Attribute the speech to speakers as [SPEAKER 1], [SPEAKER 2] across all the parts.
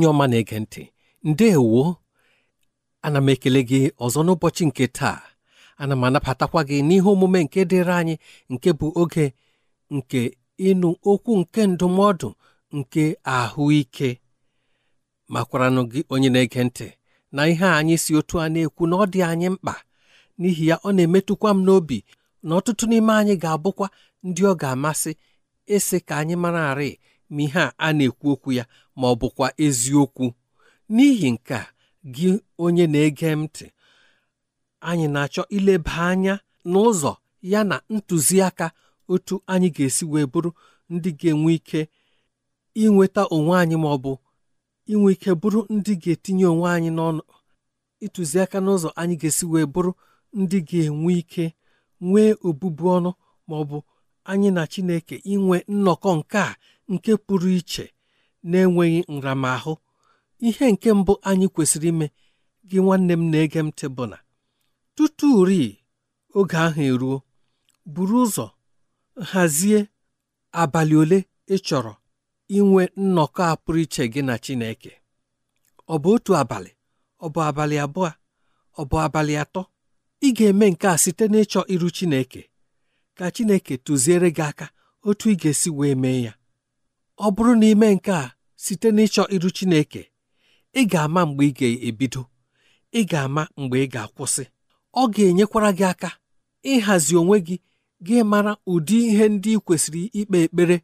[SPEAKER 1] onye ọma na-ege ntị ndeewo ana m ekele gị ọzọ n'ụbọchị nke taa ana m anabatakwa gị n'ihe omume nke dịrị anyị nke bụ oge nke ịnụ okwu nke ndụmọdụ nke ahụike makwaranụ gị onye na-ege ntị na ihe anyị si otu a na-ekwu na ọ dị anyị mkpa n'ihi ya ọ na-emetụkwa m n'obi na ọtụtụ n'ime anyị ga-abụkwa ndị ọ ga-amasị ịsị ka anyị mara arị ma ihe a a na-ekwu okwu ya ma ọ bụkwa eziokwu n'ihi nke a gị onye na-ege ntị anyị na-achọ ileba anya n'ụzọ ya na ntụziaka otu anyị ga-esi wee bụrụ ndị ga-enwe ike inweta onwe anyị ma ọ bụ inwe ike bụrụ ndị ga-etinye onwe anyị n'ọnụ ịtụziaka n'ụzọ anyị ga-esi wee bụrụ ndị ga-enwe ike nwee obubu ọnụ ma ọ bụ anyị na Chineke inwe nnọkọ nke a nke pụrụ iche na-enweghị nramahụ ihe nke mbụ anyị kwesịrị ime gị nwanne m na-ege ntị bụ na tutu ri oge ahụ eruo buru ụzọ hazie abalị ole ị chọrọ inwe nnọkọ a pụrụ iche gị na Chineke ọ bụ otu abalị ọ bụ abalị abụọ ọ bụ abalị atọ ị ga-eme nke a site n'ịchọ iru Chineke ka Chineke tụziere gị aka otu ị ga-esi wee mee ya ọ bụrụ na ime nke a site n'ịchọ iru Chineke ị ga-ama mgbe ị ga-ebido ị ga-ama mgbe ị ga-akwụsị ọ ga-enyekwara gị aka ịhazi onwe gị gị mara ụdị ihe ndị ị kwesịrị ikpe ekpere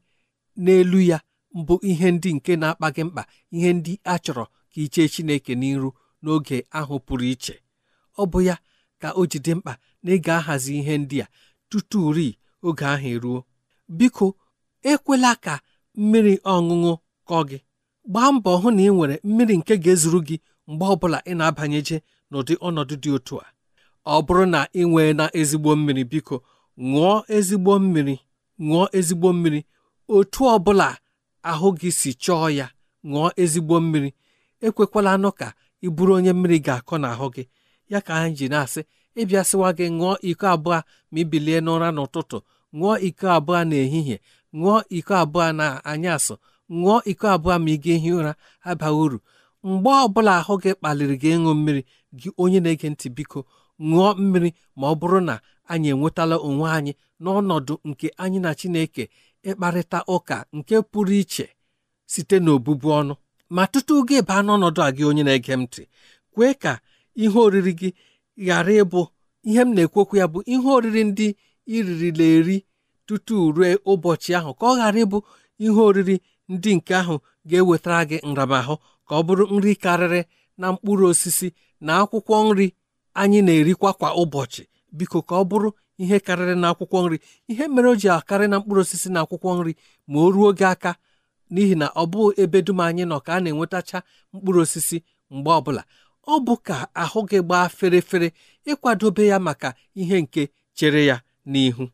[SPEAKER 1] n'elu ya bụ ihe ndị nke na-akpa gị mkpa ihe ndị a chọrọ ka i chee Chineke n'iru n'oge ahụ pụrụ iche ọ bụ ya ka o ji dị mkpa na ị ga-ahazi ihe ndị a tutu rii oge ahụ eruo biko ekwela ka mmiri ọṅụṅụ kọ gị gbaa mbọ hụ na ị nwere mmiri nke ga-ezuru gị mgbe ọbụla ị na-abanyeje n'ụdị ọnọdụ dị otu a ọ bụrụ na ị nwee na ezigbo mmiri biko ṅụọ ezigbo mmiri ṅụọ ezigbo mmiri otu ọbụla ahụ gị si chọọ ya ṅụọ ezigbo mmiri ekwekwala anụ ka ị bụrụ onye mmiri ga-akọ n'ahụ gị ya ka anyị ji na-asị ịbịasịwa gị ṅụọ iko abụọ ma ibilie n'ụra n'ụtụtụ ṅụọ iko abụọ n'ehihie ṅụọ iko abụọ na anyasị ṅụọ iko abụọ ma ị ga ehi ụra abaghị uru mgbe ọbụla ahụ gị kpaliri gị ịṅụ mmiri gị onye na-ege ntị biko ṅụọ mmiri ma ọ bụrụ na anyị enwetala onwe anyị n'ọnọdụ nke anyị na Chineke ịkparịta ụka nke pụrụ iche site n'obụbu ọnụ ma tutu gị baa n'ọnọdụ a gị onye na-ege m ntị kwee ka ihe oriri gị ghara ịbụ ihe m na-ekwekwu ya bụ ihe oriri ndị iririla eri tutu rue ụbọchị ahụ ka ọ ghara ịbụ ihe oriri ndị nke ahụ ga-ewetara gị nramahụ ka ọ bụrụ nri karịrị na mkpụrụ osisi na akwụkwọ nri anyị na-erikwa kwa ụbọchị biko ka ọ bụrụ ihe karịrị na akwụkwọ nri ihe mere o ji akarị na mkpụrụ osisi na akwụkwọ nri ma o ruo gị aka n'ihi na ọ bụ ebe dum anyị nọ ka a na-enwetacha mkpụrụ osisi mgbe ọbụla ọ bụ ka ahụ gị gbaa ferefere ịkwadobe ya maka ihe nke chere ya n'ihu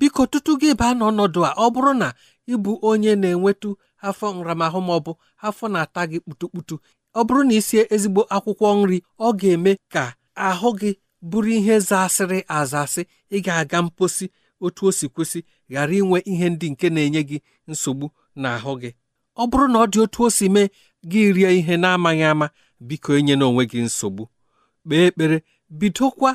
[SPEAKER 1] biko tutu gị baa n'ọnọdụ a ọ bụrụ na ịbụ onye na-enwetụ afọ nramahụ ma ọ bụ afọ na-ata gị kputukputu ọ bụrụ na i sie ezigbo akwụkwọ nri ọ ga-eme ka ahụ gị bụrụ ihe zasịrị azasị ị ga-aga mposi otu o si kwesị ghara inwe ihe ndị nke na-enye gị nsogbu n'ahụ gị ọ bụrụ na ọ dị otu o si mee gị rie ihe na-amaghị ama biko enye n'onwe gị nsogbu kpee ekpere bidokwa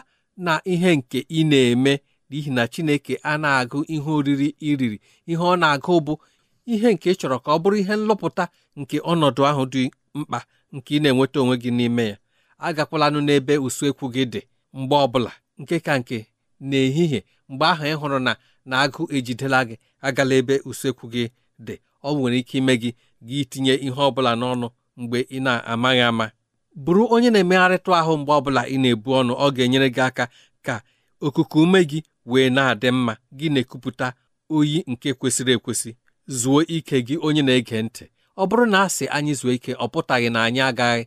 [SPEAKER 1] na ihe nke ị na-eme n'ihi na Chineke a na-agụ ihe oriri iriri ihe ọ na-agụ bụ ihe nke chọrọ ka ọ bụrụ ihe nlọpụta nke ọnọdụ ahụ dị mkpa nke ị na-enweta onwe gị n'ime ya agakwalanụ n'ebe usekwu gị dị mgbe ọbụla nke ka nke n'ehihie mgbe ahụ ị hụrụ na na agụ ejidela gị agala ebe usekwu gị dị ọ nwere ike ime gị gị itinye ihe ọbụla n'ọnụ mgbe ị na-amaghị ama bụrụ onye na emegharịta ahụ mgbe ọbụla ị na-ebu ọnụ ọ ga-enyere gị aka ka okuku ume gị wee na-adị mma gị na-ekupụta oyi nke kwesịrị ekwesị zuo ike gị onye na-ege ntị ọ bụrụ na a sị anyị zuo ike ọ pụtaghị na anyị agaghị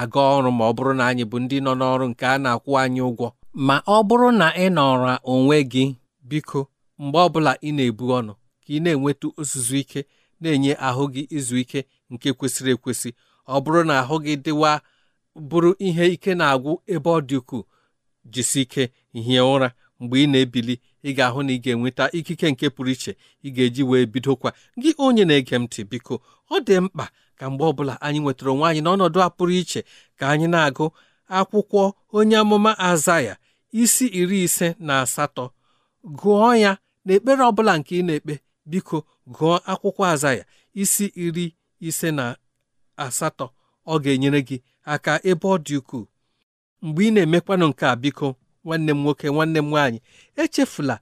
[SPEAKER 1] aga ọrụ ma ọ bụrụ na anyị bụ ndị nọ n'ọrụ nke a na-akwụ anyị ụgwọ ma ọ bụrụ na ị nọrọ onwe gị biko mgbe ọbụla ị na-ebu ọnụ ka ị na-enweta ozuzu ike na-enye ahụ gị izu ike nke kwesịrị ekwesị ọ bụrụ na ahụ gị dịwa bụrụ ihe ike na-agwụ ebe ọ dị ukwuu jisi ike hie ụra mgbe ị na-ebili ị ga-ahụ na ị ga-enweta ikike nke pụrụ iche ị ga-eji wee bidokwa gị onye na-ege ntị biko ọ dị mkpa ka mgbe ọbụla anyị nwetara onwe anyị n'ọnọdụ a pụrụ iche ka anyị na-agụ akwụkwọ onye amụma azaya isi iri ise na asatọ gụọ ya na ekpere bụla nke ị na-ekpe biko gụọ akwụkwọ azaya isi iri ise na asatọ ọ ga-enyere gị aka ebe ọ dị ukwuu mgbe ị na-emekwanụ nke a biko nwanne m nwoke nwanne m nwaanyị echefula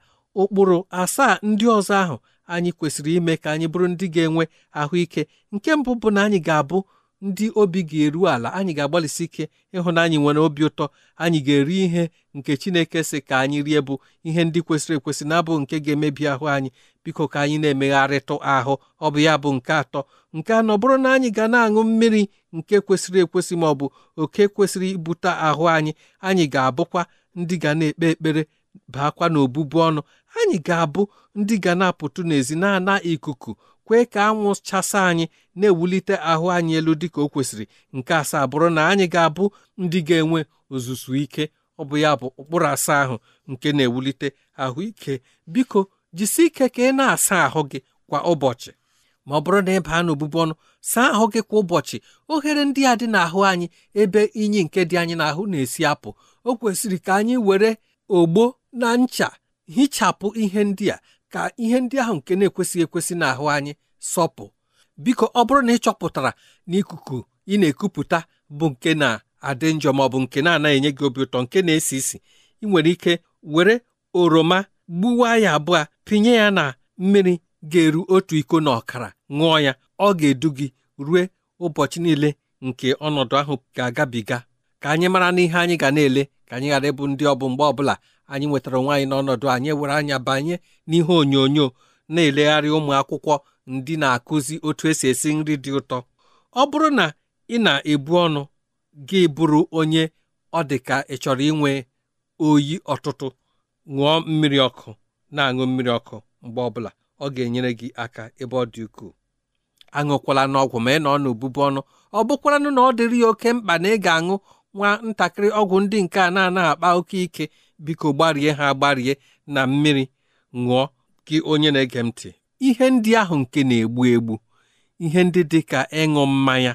[SPEAKER 1] ụkpụrụ asaa ndị ọzọ ahụ anyị kwesịrị ime ka anyị bụrụ ndị ga-enwe ahụike nke mbụ bụ na anyị ga-abụ ndị obi ga-eru ala anyị ga-agbalịsi ike ịhụ na anyị nwere obi ụtọ anyị ga-eri ihe nke Chineke sị ka anyị rie bụ ihe ndị kwesịrị ekwesị na-abụ nke ga-emebi ahụ anyị biko ka anyị na-emegharịtụ ahụ ọ bụ ya bụ nke atọ nke anọ bụrụ na anyị ga na-aṅụ mmiri nke kwesịrị ekwesị ma ọ bụ oke kwesịrị ibute ahụ anyị anyị ga-abụkwa ndị ga na-ekpe ekpere baakwa n'obụbu ọnụ anyị ga-abụ ndị ga na-apụtụ n'ezi na-ana ikuku kwee ka anwụ chasa anyị na-ewulite ahụ anyị elu dịka o kwesịrị nke asaa bụrụ na anyị ga-abụ ndị ga-enwe ozuzu ike ọ bụ ya bụ ụkpụrụ asaa ahụ nke na-ewulite ahụike biko jisi ike ka ị na-asa ahụ gị kwa ụbọchị ma ọ bụrụ na ị baa n'obụbụ ọnụ saa ahụ gị kwa ụbọchị oghere ndị a dị n'ahụ anyị ebe inyi nke dị anyị n'ahụ na-esi apụ o kwesịrị ka anyị were ogbo na ncha hichapụ ihe ndị a ka ihe ndị ahụ nke na-ekwesịghị ekwesị n'ahụ anyị sọpụ biko ọ bụrụ na ị chọpụtara na ị na-ekupụta bụ nke na-adị njọ ma ọ bụ nke na-anaghị enye gị obi ụtọ nke na-esi isi ị nwere ike were oroma gbuwa ya abụọ pinye ya na mmiri ga-eru otu iko na ọkara ṅụọ ya ọ ga-edu gị rue ụbọchị niile nke ọnọdụ ahụ ga-agabiga ka anyị mara n'ihe anyị ga na-ele ka anyị ghara ịbụ ndị ọbụ mgbe ọbụla anyị nwetara onwe anyị n'ọnọdụ anyị were anya banye n'ihe onyonyo na-elegharị ụmụ akwụkwọ ndị na-akụzi otu esi esi nri dị ụtọ ọ bụrụ na ị na-ebu ọnụ gị bụrụ onye ọ dị ka ị chọrọ inwe oyi ọtụtụ ṅụọ mmiri ọkụ na-aṅụ mmiri ọkụ mgbe ọbụla ọ ga-enyere gị aka ebe ọ dị ukwuu aṅụkwala n'ọgwụ ma ị nọ n'obubu ọnụ ọ bụkwaranụ na ọ dịrị ya oke mkpa na ị ga-aṅụ nwa ntakịrị ọgwụ ndị nke a na-ana akpa oke ike biko gbarie ha gbarie na mmiri ṅụọ gị onye na-ege m ntị ihe ndị ahụ nke na-egbu egbu ihe ndị dị ka ịṅụ mmanya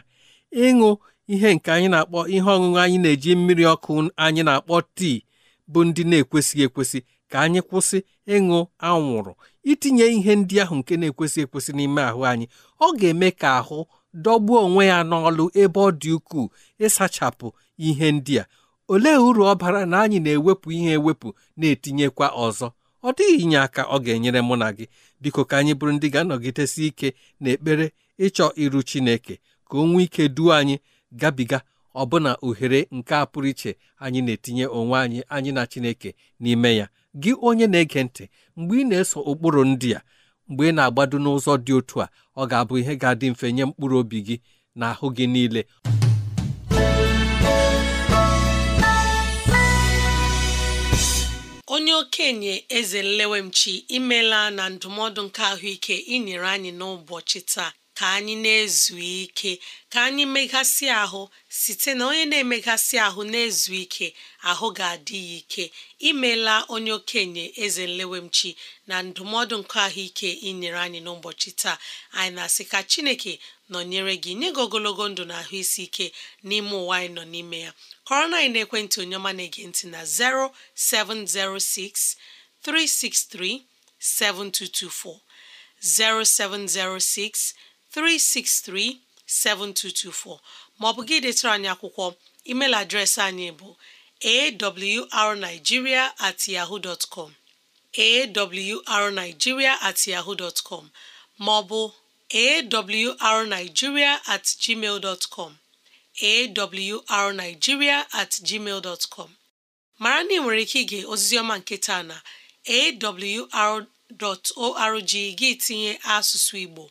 [SPEAKER 1] ịṅụ ihe nke anyị na-akpọ ihe ọṅụṅụ anyị na-eji mmiri ọkụ anyị na-akpọ tii bụ ndị na-ekwesịghị ekwesị ka anyị kwụsị ịṅụ anwụrụ itinye ihe ndị ahụ nke na-ekwesị ekwesị n'ime ahụ anyị ọ ga-eme ka ahụ dọgbuo onwe ya n'ọlụ ebe ọ dị ukwuu ịsachapụ ihe ndị a olee uru ọ bara na anyị na-ewepụ ihe ewepụ na-etinyekwa ọzọ ọ dịghị inye aka ọ ga-enyere mụ na gị biko ka anyị bụrụ ndị ga-anọgidesi ike na ekpere ịchọ iru Chineke ka o nwee ike duo anyị gabiga ọbụna ohere nke a pụrụ iche anyị na-etinye onwe anyị anyị na Chineke n'ime ya gị onye na-ege ntị mgbe ị na-eso ụkpụrụ ndị a mgbe ị na-agbado n'ụzọ dị otu a ọ ga-abụ ihe ga-adị mfe nye mkpụrụ obi gị na ahụ gị niile
[SPEAKER 2] onye okenye eze nlewemchi imela na ndụmọdụ nke ahụike inyere anyị n'ụbọchị taa ka anyị na-ezu ike ka anyị meghasị ahụ site na onye na-emeghasị ahụ na-ezu ike ahụ ga-adị ya ike imela onye okenye eze nlewemchi na ndụmọdụ nke ahụike inyere anyị n'ụbọchị taa anyị na-asị ka chineke nọnyere gị nye gị ogologo ndụ na ahụ isi ike n'ime ụwa anyị nọ n'ime ya kọrọ na anyị na-ekwentị onye ọma na-ege na 0706 363 7224 0706 363-7224 maọbụ gị detara anyị akwụkwọ email adreesị anyị bụ awrnigeria at yahoo dot com awrnigeria at yahoo dot com maọbụ awrnigeria at gmail dot com awrnigeria at gmail dot com mara na ị nwere ike ige ozizioma nke taa na awr.org gị tinye asụsụ Igbo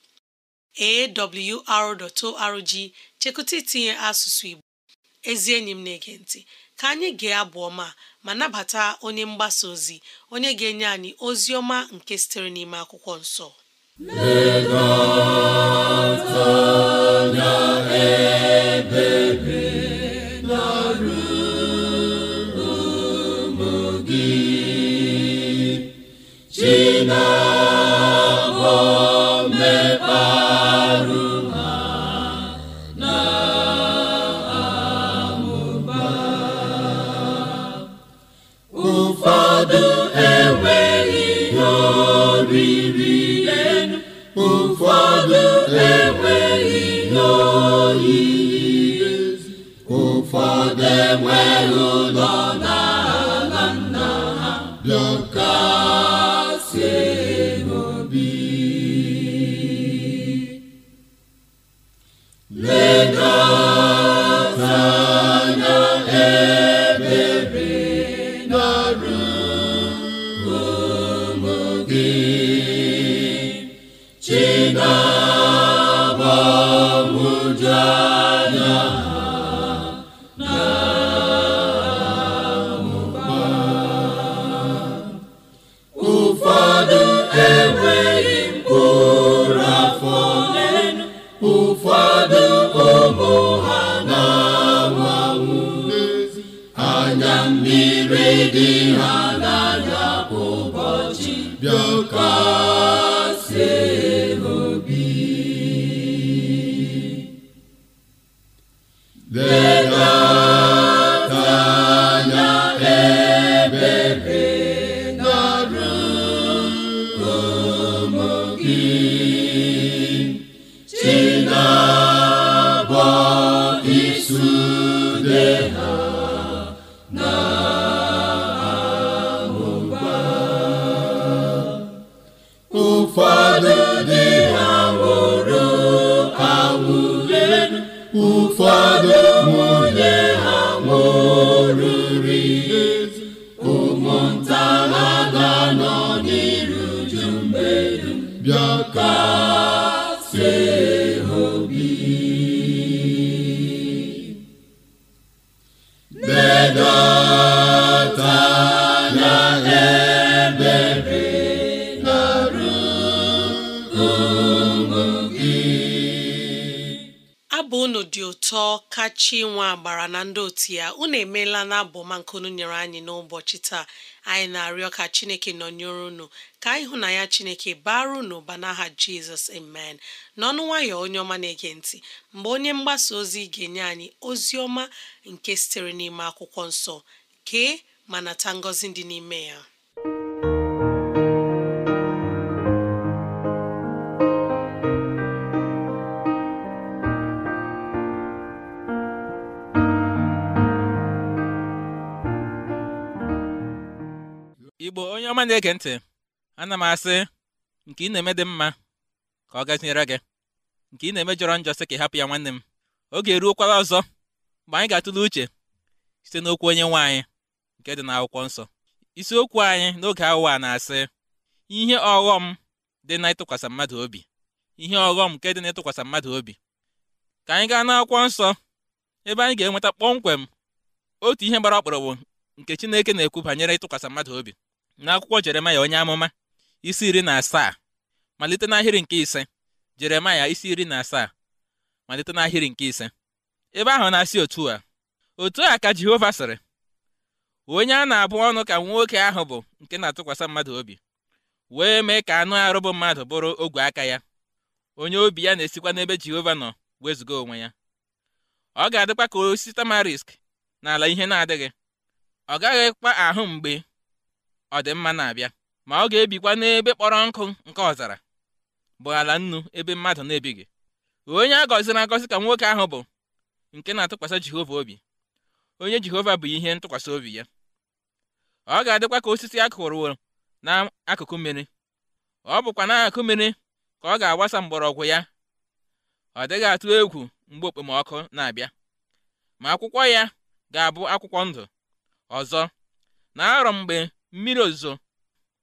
[SPEAKER 2] awr.org chekụta itinye asụsụ Igbo ezi enyi m na-ege ntị ka anyị gee abụ ọma ma nabata onye mgbasa ozi onye ga-enye anyị ozi ọma nke sitere n'ime akwụkwọ nsọ
[SPEAKER 1] enweghị ụlọ n'ala
[SPEAKER 2] nna ha bịa emeela na nke unu nyere anyị n'ụbọchị taa anyị na-arịọ ka chineke nọnyere unu ka anyị hụ na ya chineke bara unu ụba n'aha jizọs amen n'ọnụ nwayọ onye ọma na-ege ntị mgbe onye mgbasa ozi ga-enye anyị ozi ọma nke sitere n'ime akwụkwọ nsọ kee ma nata ngọzi dị n'ime ya
[SPEAKER 3] ọma na-ege ntị ana m asị nke ị na-eme dị mma ka ọ gaziere gị nke ị na-eme jọrọ njọ sị ka ị hapụ ya nwanne m oge eruokwala ọzọ mgbe anyị ga-atụle uche site n'okwu onye nwe anyị nke dị n'akwụkwọ nsọ isiokwu anyị n'oge awụwa na-asị ihe ọghọm dị na ịtụkwasị mmadụ obi ihe ọghọm nke dị na ịtụkwasị mmadụ obi ka anyị gaa n'akwụkwọ nsọ ebe anyị ga-enweta kpọmkwem otu ihe gbara ọkpụrụgbụ nke Chineke na-ekwu banyere ịtụkwasị mmadụ obi n'akwụkwọ jeremaya onye amụma isi iri na asaa malite n'ahịrị nke ise jeremaya isi iri na asaa malite n'ahịrị nke ise ebe ahụ na-asị otu a otu a ka jehova sịrị onye a na-abụ ọnụ ka nwoke ahụ bụ nke na-atụkwasị mmadụ obi wee mee ka anụ arụ bụ mmadụ bụrụ ogwe aka ya onye obi ya na-esikwa n'ebe jehova nọ wezụga onwe ya ọ ga-adịkwa ka osisi tamarisk n'ala ihe na-adịghị ọ gaghịkwa ahụ mgbe ọdịmma na-abịa ma ọ ga-ebikwa n'ebe kpọrọ nkụ nke ọzara bụ ala nnu ebe mmadụ na-ebighị onye a gọziri agọzi ka nwoke ahụ bụ nke na-atụkwasị Jehova obi onye Jehova bụ ihe ntụkwasị obi ya ọ ga-adịkwa ka osisi a na n'akụkụ mmiri ọ bụkwa n'akụkụ mmiri ka ọ ga-agbasa mgbọrọgwụ ya ọ dịghị atụ egwu mgbe okpomọkụ na-abịa ma akwụkwọ ya ga-abụ akwụkwọ ndụ ọzọ na arọ mgbe mmiri ozuzo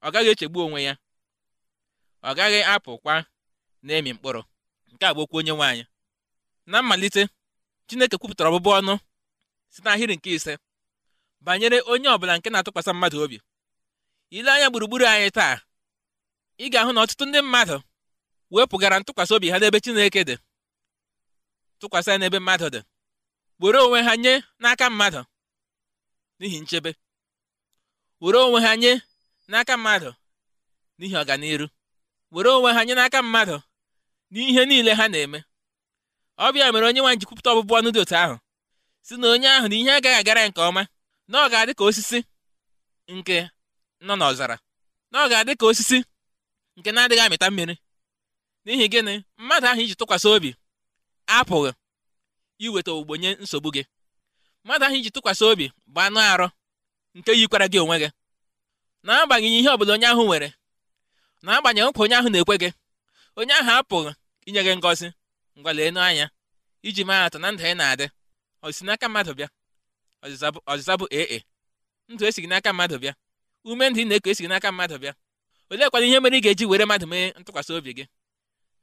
[SPEAKER 3] ọ gaghị echegbu onwe ya ọ gaghị apụkwa na-emi mkpụrụ nke a bụ okwu onye nwaanyị na mmalite Chineke kwupụtara ọbụbụ ọnụ site n'ahịrị nke ise banyere onye ọbụla nke na-atụkwasị mmadụ obi ile anya gburugburu anyị taa ị ga-ahụ na ọtụtụ ndị mmadụ wepụgara ntụkwasị obi ha n'ebe Chineke dị tụkwasị ya n'ebe mmadụ dị were onwe ha nye n'aka mmadụ n'ihi nchebe were onwe ha nye n'aka mmadụ n'ihi ọganiru were onwe ha nye n'aka mmadụ n'ihe niile ha na-eme bịa mere onye nwanyị ji kwupụta ọbụbụ ọnụ dị otu ahụ si na onye ahụ na ihe agaghị agara nke ọma na ọ ga-adị ka osisi nke nọ n'ọzara na ọ ga-adị ka osisi nke na-adịghị amịta mmiri n'ihi gịnị mmadụ ahụ iji tụkwasị obi apụghị iweta ogbugbo nye nsogbu gị mmadụ ahụ iji tụkwasị obi bụ anụ arụ nke yikwara gị onwe gị na-agbanyeghị ihe ọbụla onye ahụ nwere na-agbanyeghị nkwa onye ahụ na-ekwe gị onye ahụ apụghị inye gị ngọzi ngwa anya iji maa atụ na ndụ anyị na-adị ọzịza n'aka mmadụ bịa ọzịza bụ ee ndụ e gị n'aka mmadụ bịa ume ndụ ị na-eku e gị n'aka mmadụ bịa oleekwana ihe mere ị ga-eji were mmadụ mee ntụkwasị obi gị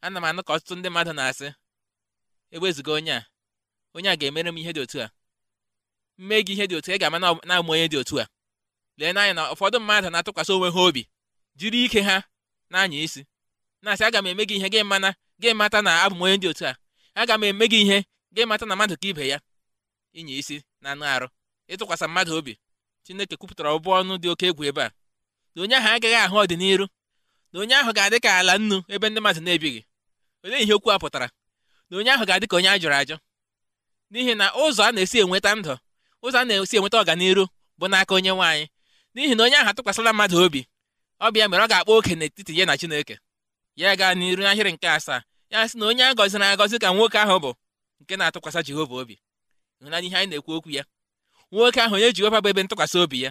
[SPEAKER 3] ana m anụ ka ọtụtụ ndị mmadụ na-asị ewezuga onye a onye a ga-emere m ihe dị otu a mee gị ihe dị otu ị ga-ama na-amụ onye dị otu a lee n'anya na ụfọdụ mmadụ na-atụkwasị onwe ha obi jiri ike ha na-anya isi na-asị aga m eme gị ihe gị mana gị mata na abụ m onye dị otu a aga m eme gị ihe gị mata na mmadụ ka ibe ya ịnya isi na anụ arụ ịtụkwasị mmadụ obi chineke kwupụtara ọbụ ọnụ dị oke egwu ebe a na onye ahụ agaghị ahụ ọdịnihu na onye ahụ ga-adị ka ala nnu ebe ndị mmadụ na-ebighị olee ihe okwu a pụtara na onye ahụ ga-adị ka onye a jụrụ ajụ n'ihi na ụzọ a na-esi enweta ndụ ụzọ a na-esi enweta ọganiru bụ n'aka onye nwaanyị n'ihi na onye ahụ atụkwasịla mmadụ obi ọbịa mere ọ ga-akpọ oke n'etiti ya na Chineke ya gaa n'iru n'ahịrị nke asaa ya sị na onye a gọziri agọzi ka nwoke ahụ bụ nke na-atụkwasị Jehova obi ịhụnanya ihe anyị na-ekwu okwu ya nwoke ahụ onye Jehova bụ ebe ntụkwasị obi ya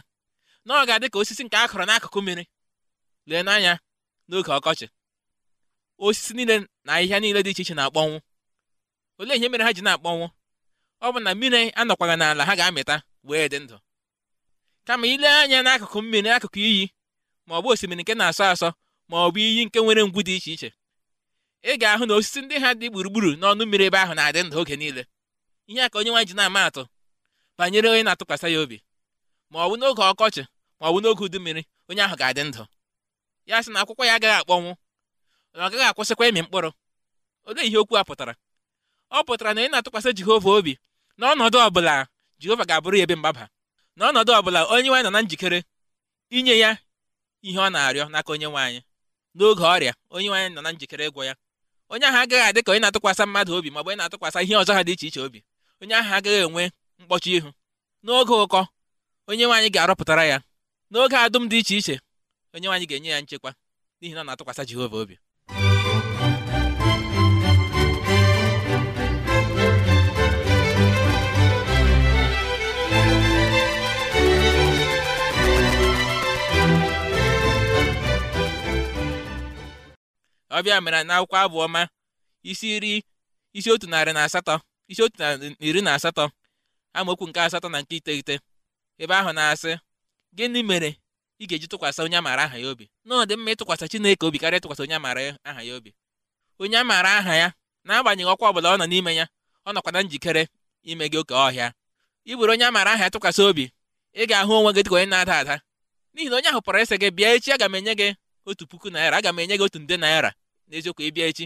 [SPEAKER 3] na ọ ga-adị ka osisi nke a kọrọ n'akụkụ mmiri lee n'anya n'oge ọkọchị osisi niile na ahịhịa niile dị iche iche na-akpọnwụ olee ihe mere ha ji na-akpọnwụ ọ bụ na mmiri anọkwara n'ala ha ga-amịta wee dị ndụ kama ile anya n'akụkụ mmiri akụkụ iyi ma ọ bụ osimiri nke na-asọ asọ ma ọ bụ iyi nke nwere ngwu dị iche iche ị ga-ahụ na osisi ndị ha dị gburugburu n'ọnụ mmiri ebe ahụ na-adị ndụ oge niile ihe a ka onye nwanyị ji na-ama atụ banyere onye na-atụkwasị ya obi ma ọ bụ n'oge ọkọchị ma ọ bụ n'oge udu mmiri onye ahụ ga-adị ndụ ya sị na akwụkwọ ya agaghị akpọnwụ na ọ gaghị akwụsịkwa ịmị mkpụrụ olee ihe okwu a pụtara ọ pụtara na ị na-atụkwasị Jehova obi n'ọnọdụ ọbụla jehova ga-abụrụ ya ebe mgbaba n'ọnọdụ ọbụla onye nwe anyị nọ na njikere inye ya ihe ọ na-arịọ n'aka onye nwe n'oge ọrịa onye nwe anyị nọ na njikere ịgwọ ya onye ahụ agaghị adị ka onye na-atụkwasị mmadụ obi maọbụ onye na-atụkwasị ihe ọzọ ha dị iche iche obi onye ahụ agaghị enwe mkpọchi ihu n'oge ụkọ onye nwe ga-arọpụtara ya n'oge adụm dị iche iche onye nwe ga-enye ya nchekwa n'ihi na ọ na-atụkwasị jehova obi ọbịa mere n'akwụkwọ abụ ma isi iri isi otu narị na asatọ isi otu na iri na asatọ amaokwu nke asatọ na nke iteghete ebe ahụ na-asị gịnị mere ị ga-eji tụkwasị onye amaara aha ya obi na dị mma ịtụkwasị Chineke obi karịa ịtụkwasị onye amaara aha ya obi onye amaara aha ya n'agbanyeghị ọkwa ọbụla ọ nọ n'ime ya ọ nọkwa na njikere ime gị oke ọhịa ị onye amaara aha ya tụkwasị obi ị ga-ahụ onwe gị dịka onye na-ada ada n'ihi na onye ahụ pụrụ ịsị gị bịa echi aga m enye gị otu puku naira aga m enye gị otu nde naira n'eziokwu ịbịa echi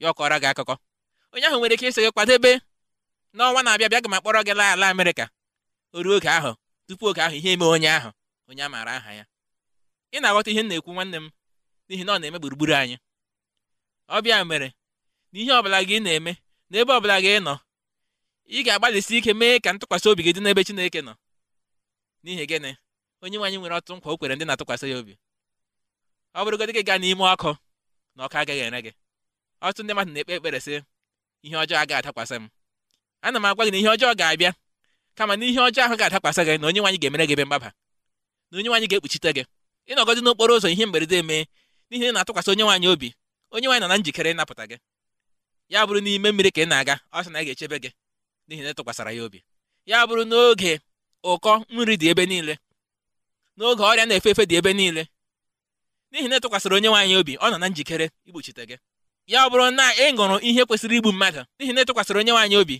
[SPEAKER 3] ya ọkọra gị akụkọ onye ahụ nwere ike ịsị gị kwadebe n'ọnwa na-abịa bịa ga ma akpọrọ gị laa ala Amerịka oge ahụ tupu oge ahụ ihe eme onye ahụ onye a maara aha ya ị na-aghọta ihe m na-ekwu nwanne m n'ihi na ọ na-eme gburugburu anyị ọbịa mere na ihe ọbụla gị na-eme na ebe ọbụla gị nọ ị ga-agbalịsi ike mee ka ntụkwasị obi gị dị n'ebe Chineke nọ n'ihi gịnị onye nwe nwere ọtụtụ nkwa o kwere ndị na-atụkwasị ya obi ọ bụrụgodị gị gaa n'ime ọkụ na ọka agaghị ere gị ọtụtụ ndị mmadụ na-ekpe ekpere sị ihe ọjọọ agaghị adakwasị m ana m agwa gị na ihe ọjọọ ga-abịa kama na ihe ọjọọ ahụ ga-adakwasị gị na onye nwaanyị ga-emere gị ebe mgbaba na onye nwaanyị ga-ekpuchite gị ịnọgọdị n'okporo ụzọ ihe mberede emee n'ihi na ị na-atụkwasị onye nwaanyị obi onye nwaanyị nọ na njikere ịnapụta gị ya bụrụ n'ime mmiri ka ị na-aga ọ sị na ị ga-echebe gị n'ihi na ị ya obi ya bụrụ n'oge ụkọ nri dị ebe niile n'oge ọrịa na-efe efe dị ebe niile n'ihi na ịtụkwasịrị onye nwaanyị obi ọ nọ na njikere igbochite gị ya ọ bụrụ na ị ṅụrụ ihe kwesịrị igbu mmadụ n'ihi na ịtụkwasịrị onye nwaanyị obi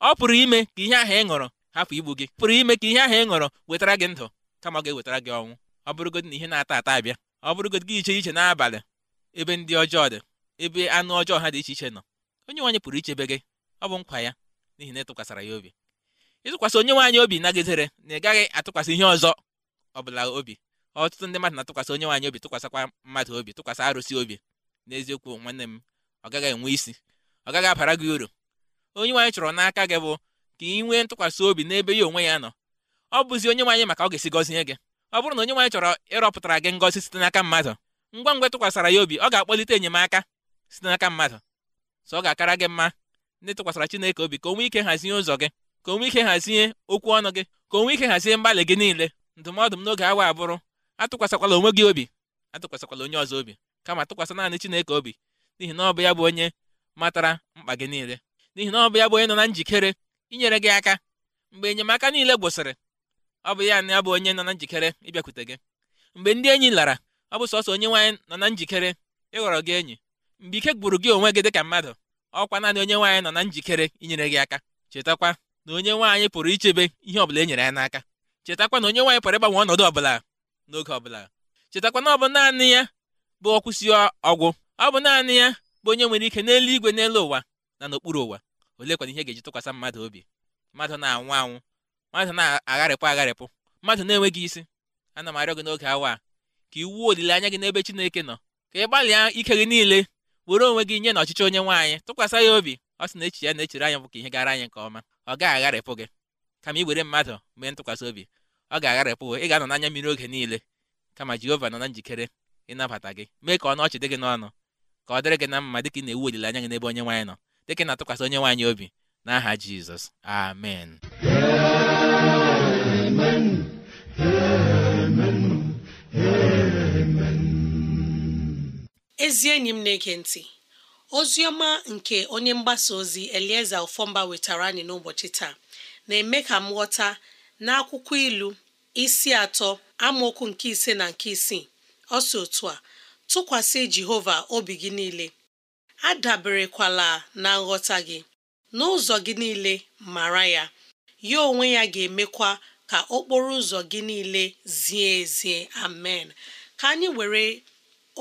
[SPEAKER 3] ọ pụrụ ime ka ihe ahụ ị ṅụrụ hapụ igbu gị pụrụ ime ka ihe ahụ ị ṅụrụ wetara gị ndụ kama ọ ga-ewetara gị ọnwụ ọ bụrụgodị na ihe na-ata ata abịa ọ bụrụgodị gị iche iche n'abalị ebe ndị ọjọọ dị ebe anụ ọjọọ ha dị iche iche nọ onye nwaanyị pụrụ ichebe gị ọ bụ nkwa ya n'ihi na ya obi ịtụkwasị onye nwaanyị obi nagidere na ị gaghị atụkwasị ihe ọzọ ọ bụla obi ọtụtụ ndị mmadụ na-atụkwasị onye nwaanyị obi tụkwasịkwa mmadụ obi tụkwasị arụsị obi n'eziokwu nwanne m ọ gaghị enwe isi ọ gaghị abara gị uru onye nwaanyị chọrọ n'aka gị bụ ka ị nwee ntụkwasị obi n'ebe ya onwe ya nọ ọ bụzi onye nwaanyị maka ọ ga-esi gọzie gị ọ bụrụ na onye nwaanyị chọrọ ịrọpụtara gị ngọzi site n'aka mmadụ ngwa ngwa tụkwasara ya obi ọ ga-akpọlite enyemaka site n'aka mmadụ so ọ ga-akara gị mma ndị tụkwasara Chineke obi ka o ike hazie ụzọ gị ka onwe ike hazie okwu ọnụ gị ka onwe ike hazie mgbalị gị niile ndụmọdụ m n'oge awa abụrụ atụkwasịkwala onwe gị obi atụkwasịkwala onye ọzọ obi kama tụkwasị naanị Chineke obi n'ihi na ọ bụ ya bụ onye matara mkpa gị niile n'ihi na ọ bụ ya bụ onye nọ na njikere inyere gị aka mgbe enyemaka niile gwụsịrị ọ bụ ya na ya bụ onye nọ na njikere ịbịakwute gị mgbe ndị enyi lara ọ bụ sọsọ onye nwaanyị nọ na njikere ịghọrọ gị enyi mgbe ike gburu gị onwe gị ka mmadụ ọkwa naanị onye nwaanyị nọ na njikere inyere gị aka chetakwa na onye nwaanyị pụrụ ichebe ihe ọbụla e nyere ya n'aka chetakwa na onye nwaanyị pụrụ ịgbanwe ọnọdụ ọbụla n'oge ọbụla bụla na ọ bụ naanị ya bụ ọkwụsị ọgwụ ọ bụ naanị ya bụ onye nwere ike n'eluigwe n'elu ụwa na n'okpuru ụwa kwana ihe ga-eji tụkwasị mmadụ obi mmadụ na-anwụ anwụ mmadụ na-agharịpụ agharịpụ mmadụ na-enweghị isi ana m arịọ gị n'oge awa ka iwu olileanya gị n'ebe Chineke nọ ka ị gbalịa ike gị niile were onwe gị nye na ọchịchị onye nwaanyị tụkwasị ya obi ọ sị na echi ya na-echere anyị bụ ka ihe gara anyị nke ọma ọ gaghị agharịpụ gị kama ị mmadụ mee ntụkwasị obi ọ ga-agharịpụ ị ga-anọ n'anya mmiri oge niile kama Jehova nọ na njikere ịnabata gị mee ka ọ n'ọchị dị gị n'ọnụ ka ọ dịrị gị na mma dịka ị na-ewu olileanya gị n'ebe onye nwaanyị nọ dịka ị na-atụkwasị onye nwaanyị obi n'aha Jizọs amen
[SPEAKER 2] ezi enyi m na-ege ntị ozi ọma nke onye mgbasa ozi Elieza Ofọmba wetara anyị n'ụbọchị taa na-eme ka m ghọta n'akwụkwọ ilu isi atọ amaokwu nke ise na nke isii ọ si otu a tụkwasị Jehova obi gị niile adaberekwala na nghọta gị n'ụzọ gị niile mara ya ya onwe ya ga-emekwa ka okporo ụzọ gị niile zie ezie amen ka anyị were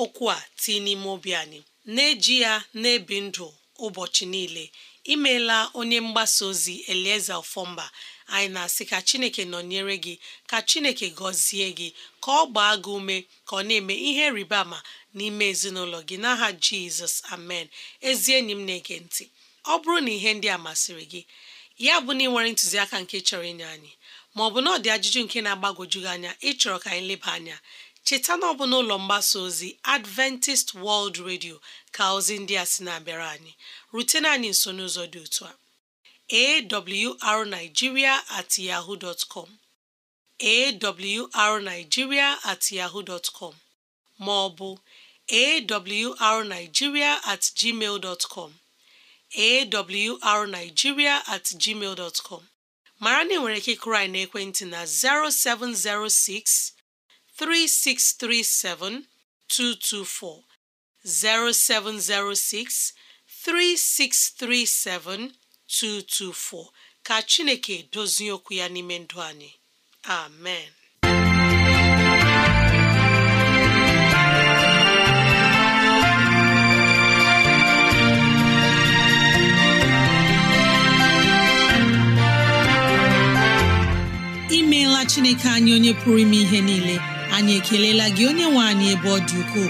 [SPEAKER 2] okwu a tii n'ime obi anyị na-eji ya na-ebi ndụ ụbọchị niile imeela onye mgbasa ozi elieze ofọmba anyị na-asị ka chineke nọnyere gị ka chineke gọzie gị ka ọ gbaa gị ume ka ọ na-eme ihe rịba ama n'ime ezinụlọ gị n'aha jizọs amen ezi enyi m na-ege ntị ọ bụrụ na ihe ndị a masịrị gị ya bụ na ị nwere ntụziaka nke chọrọ inye anyị bụ na ọ dị ajụjụ nke na-agbagwoju gị anya ịchọrọ ka anyị leba anya cheta na ọ bụ n'ụlọ mgbasa ozi adventist world radio ka ozi ndị a sị na-abịara anyị rutena anyị nso n'ụzọ dị otu a awrnigeria at yahoo dot com at yahoo dot com ma ọ bụ awrnigeria at gmail dot com awrnigeria at gmail dot mara na ị nwere ike ịkụrụ anyị n'ekwentị na 0706 3637224 0706 3637224 ka Chineke dozie okwu ya n'ime ndụ anyị amen imeela Chineke anyị onye pụrụ ime ihe niile anyị ekelela gị onye nwe anyị ebe ọ dị ukwuu